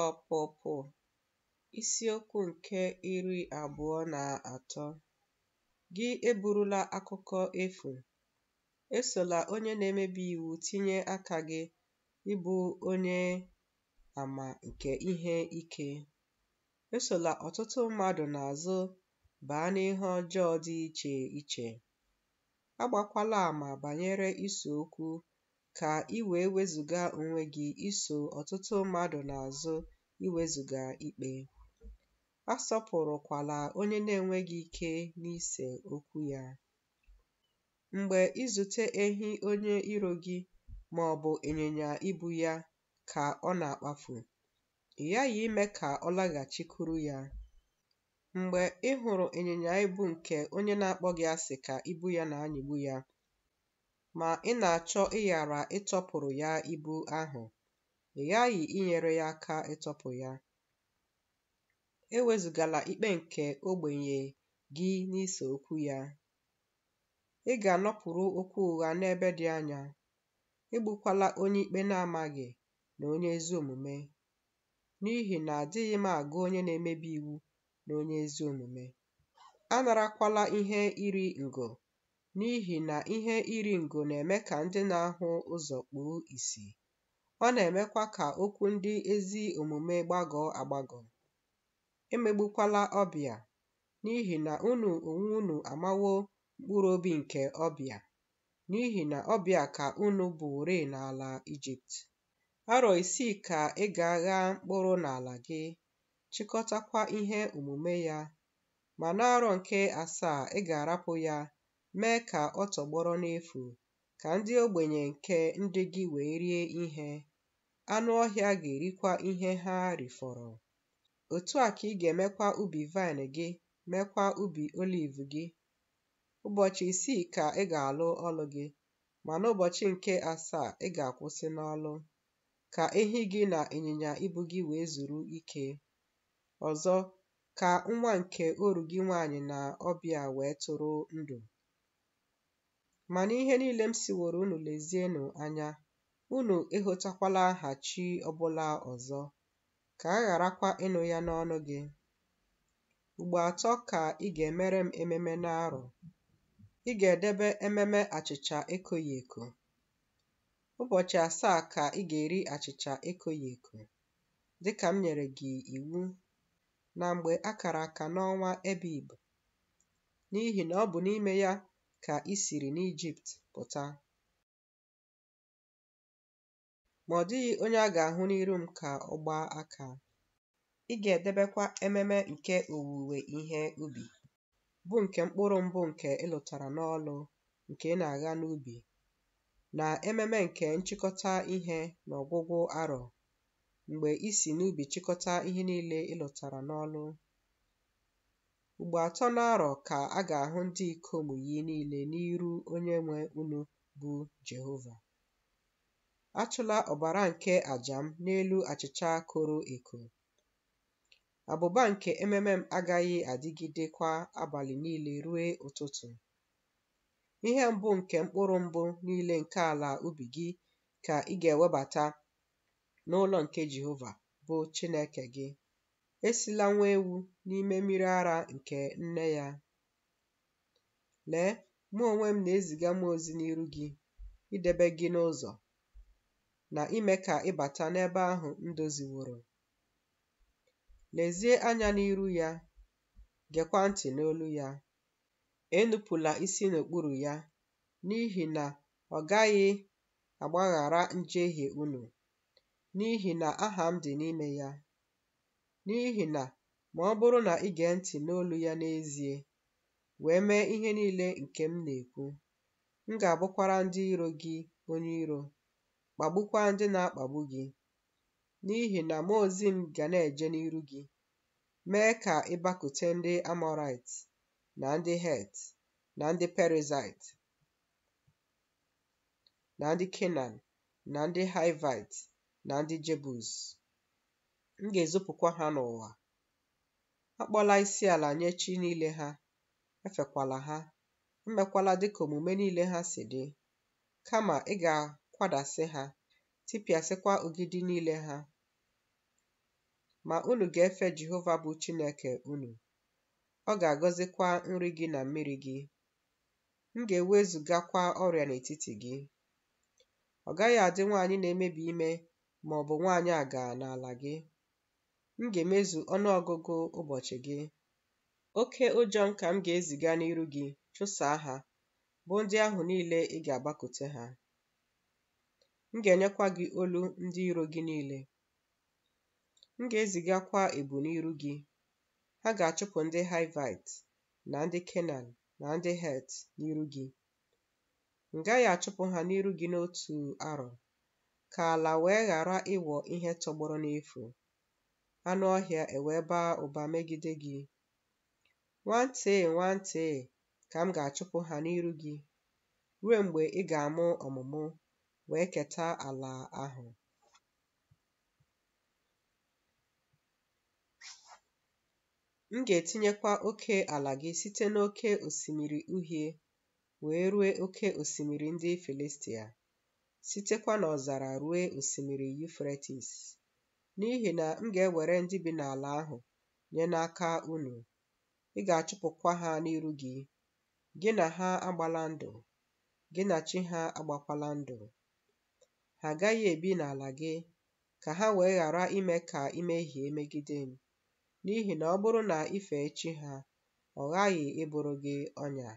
Ọpụpụ isiokwu nke iri abụọ na atọ Gị eburula akụkọ efu, esola onye na-emebi iwu tinye aka gị ịbụ onye àmà nke ihe ike. Esola ọtụtụ mmadụ n'azụ baa n'ihe ọjọọ dị iche iche. Agbakwala àmà banyere isi okwu ka i wee wezụga onwe gị iso ọtụtụ mmadụ n'azụ iwezụga ikpe. Asọpụrụkwala onye na-enweghị ike n'ise okwu ya. Mgbe ịzụta ehi onye iro gị ma ọ bụ ịnyịnya ibu ya ka ọ na-akpafu, ị ghaghị ime ka ọ laghachikwuru ya. Mgbe ị hụrụ ịnyịnya ibu nke onye na-akpọ gị asị ka ibu ya na-anyịgbu ya ma ị na-achọ ịghara ịtọpụrụ ya ibu ahụ, ị ghaghị inyere ya aka ịtọpụ ya. Ewezụgala ikpe nke ogbenye gị n'ise okwu ya. Ị ga-anọpụrụ okwu ụgha n'ebe dị anya. Egbukwala onye ikpe na-amaghị na onye ezi omume, n'ihi na adịghị m agụ onye na-emebi iwu na onye ezi omume. Anarakwala ihe iri ngo N'ihi na ihe iri ngo na-eme ka ndị na-ahụ ụzọ kpùo ìsì ọ na-emekwa ka okwu ndị ezi omume gbagọ̀ọ agbagọ, emegbukwala ọbịa. N'ihi na unu onwe unu amawo mkpụrụ obi nke ọbịa. n'ihi na ọbịa ka unu bụrị n'ala Ijipt arọ isii ka ị ga-agha mkpụrụ n'ala gị chịkọtakwa ihe omume ya ma n'arọ nke asaa ị ga-arapụ ya mee ka ọ tọgbọrọ n'efu ka ndị ogbenye nke ndị gị wee rie ihe anụ ọhịa ga-erikwa ihe ha rifọrọ otu a ka ị ga-emekwa ubi vaịn gị meekwa ubi oliv gị ụbọchị isii ka ị ga-alụ ọlụ gị ma n'ụbọchị nke asaa ị ga-akwụsị n'ọlụ ka ehi gị na ịnyịnya ibu gị wee zuru ike ọzọ ka nwa nke oru gị nwaanyị na ọbịa wee tụrụ ndụ Ma n'ihe niile m siworo unu lezienụ anya, unu ịhụtakwala aha chi ọbụla ọzọ, ka a gharakwa ịnụ ya n'ọnụ gị. Ugbo atọ ka ị ga-emere m ememe n'arọ. Ị ga-edebe ememe achịcha ekoghị eko. Ụbọchị asaa ka ị ga-eri achịcha ekoghị eko, dịka m nyere gị iwu na mgbe a aka n'ọnwa ebe ibu, n'ihi na ọ bụ n'ime ya Ka i siri n'Ijipt pụta, ma ọ dịghị onye a ga-ahụ n'iru m ka ọ gbaa aka. Ị ga-edebekwa ememe nke owuwe ihe ubi, bụ nke mkpụrụ mbụ nke ịlụtara n'ọlụ nke ị na aga n'ubi, na ememe nke nchịkọta ihe n'ọgwụgwụ arọ, mgbe ị si n'ubi chịkọta ihe niile ịlụtara n'ọlụ. Mgbe atọ n'arọ ka a ga-ahụ ndị ikom yi niile onye Onyenwe unu bụ Jehova. Achụla ọbara nke aja m n'elu achịcha koro eko. Abụba nke ememe m agaghị adịgidekwa abalị niile ruo ụtụtụ. Ihe mbụ nke mkpụrụ mbụ niile nke ala ubi gị ka ị ga-ewebata n'ụlọ nke Jehova bụ Chineke gị. esila nwa ewu n'ime mmiri ara nke nne ya. Lee, mụ onwe m na-eziga m ozi n'iru gị idebe gị n'ụzọ na ime ka ịbata n'ebe ahụ m Lezie anya n'iru ya, gekwa ntị n'olu ya. Enupụla isi n'okpuru ya, n'ihi na ọ gaghị agbaghara njehie unu, n'ihi na aha m dị n'ime ya. N'ihi na ma ọ bụrụ na ị gee ntị n'olu ya n'ezie, wee mee ihe niile nke m na-ekwu, m ga-abụkwara ndị iro gị onye iro, kpagbukwa ndị na-akpagbu gị. N'ihi na mụ ozi m ga na-eje n'iru gị, mee ka ịbakute ndị Amọrait, na ndị Het, na ndị Perizait, na ndị Kenan, na ndị Hivait, na ndị Jebus. m ga ezopụkwa ha n'ụwa. Akpọla isiala nye chi niile ha, efekwala ha, Mmekwala e dịka omume niile ha si dị, kama ị ga-akwadasị ha, tipịasịkwa ogidi niile ha. Ma unu ga-efe Jehova bụ Chineke unu, ọ ga-agọzikwa nri gị na mmiri gị. M ga-ewezugakwa ọrịa n'etiti gị. Ọ gaghị adị nwaanyị na-emebi ime ma ọ bụ nwaanyị aga n'ala gị. m ga-emezu ọnụọgụgụ ụbọchị gị oke ụjọ m ka m ga-eziga n'iru gị chụsaa ha bụ ndị ahụ niile ị ga agbakote ha m ga-enyekwa gị olu ndị iro gị niile m ga-ezigakwa ebu n'iru gị ha ga-achụpụ ndị haivit na ndị Kenan na ndị Het n'iru gị m gaghị achụpụ ha n'iru gị n'otu arọ ka ala wee ghara ịghọ ihe tọgbọrọ n'efu anụ ọhịa ewee baa ụba megide gị nwantị nwantị ka m ga-achụpụ ha n'iru gị ruo mgbe ị ga-amụ ọmụmụ wee keta ala ahụ m ga-etinyekwa oke ala gị site n'oke osimiri uhie wee rue oke osimiri ndị Filistia sitekwa n'ọzara rue osimiri Yufretis n'ihi na m ga-ewere ndị bi n'ala ahụ nye n'aka unu. Ị ga-achụpụkwa ha n'iru gị. Gị na ha agbala ndụ, gị na chi ha agbakwala ndụ. Ha agaghị ebi n'ala gị, ka ha wee ghara ime ka imehie megide m, n'ihi na ọ bụrụ na i fe chi ha, ọ ghaghị ịbụrụ gị ọnya.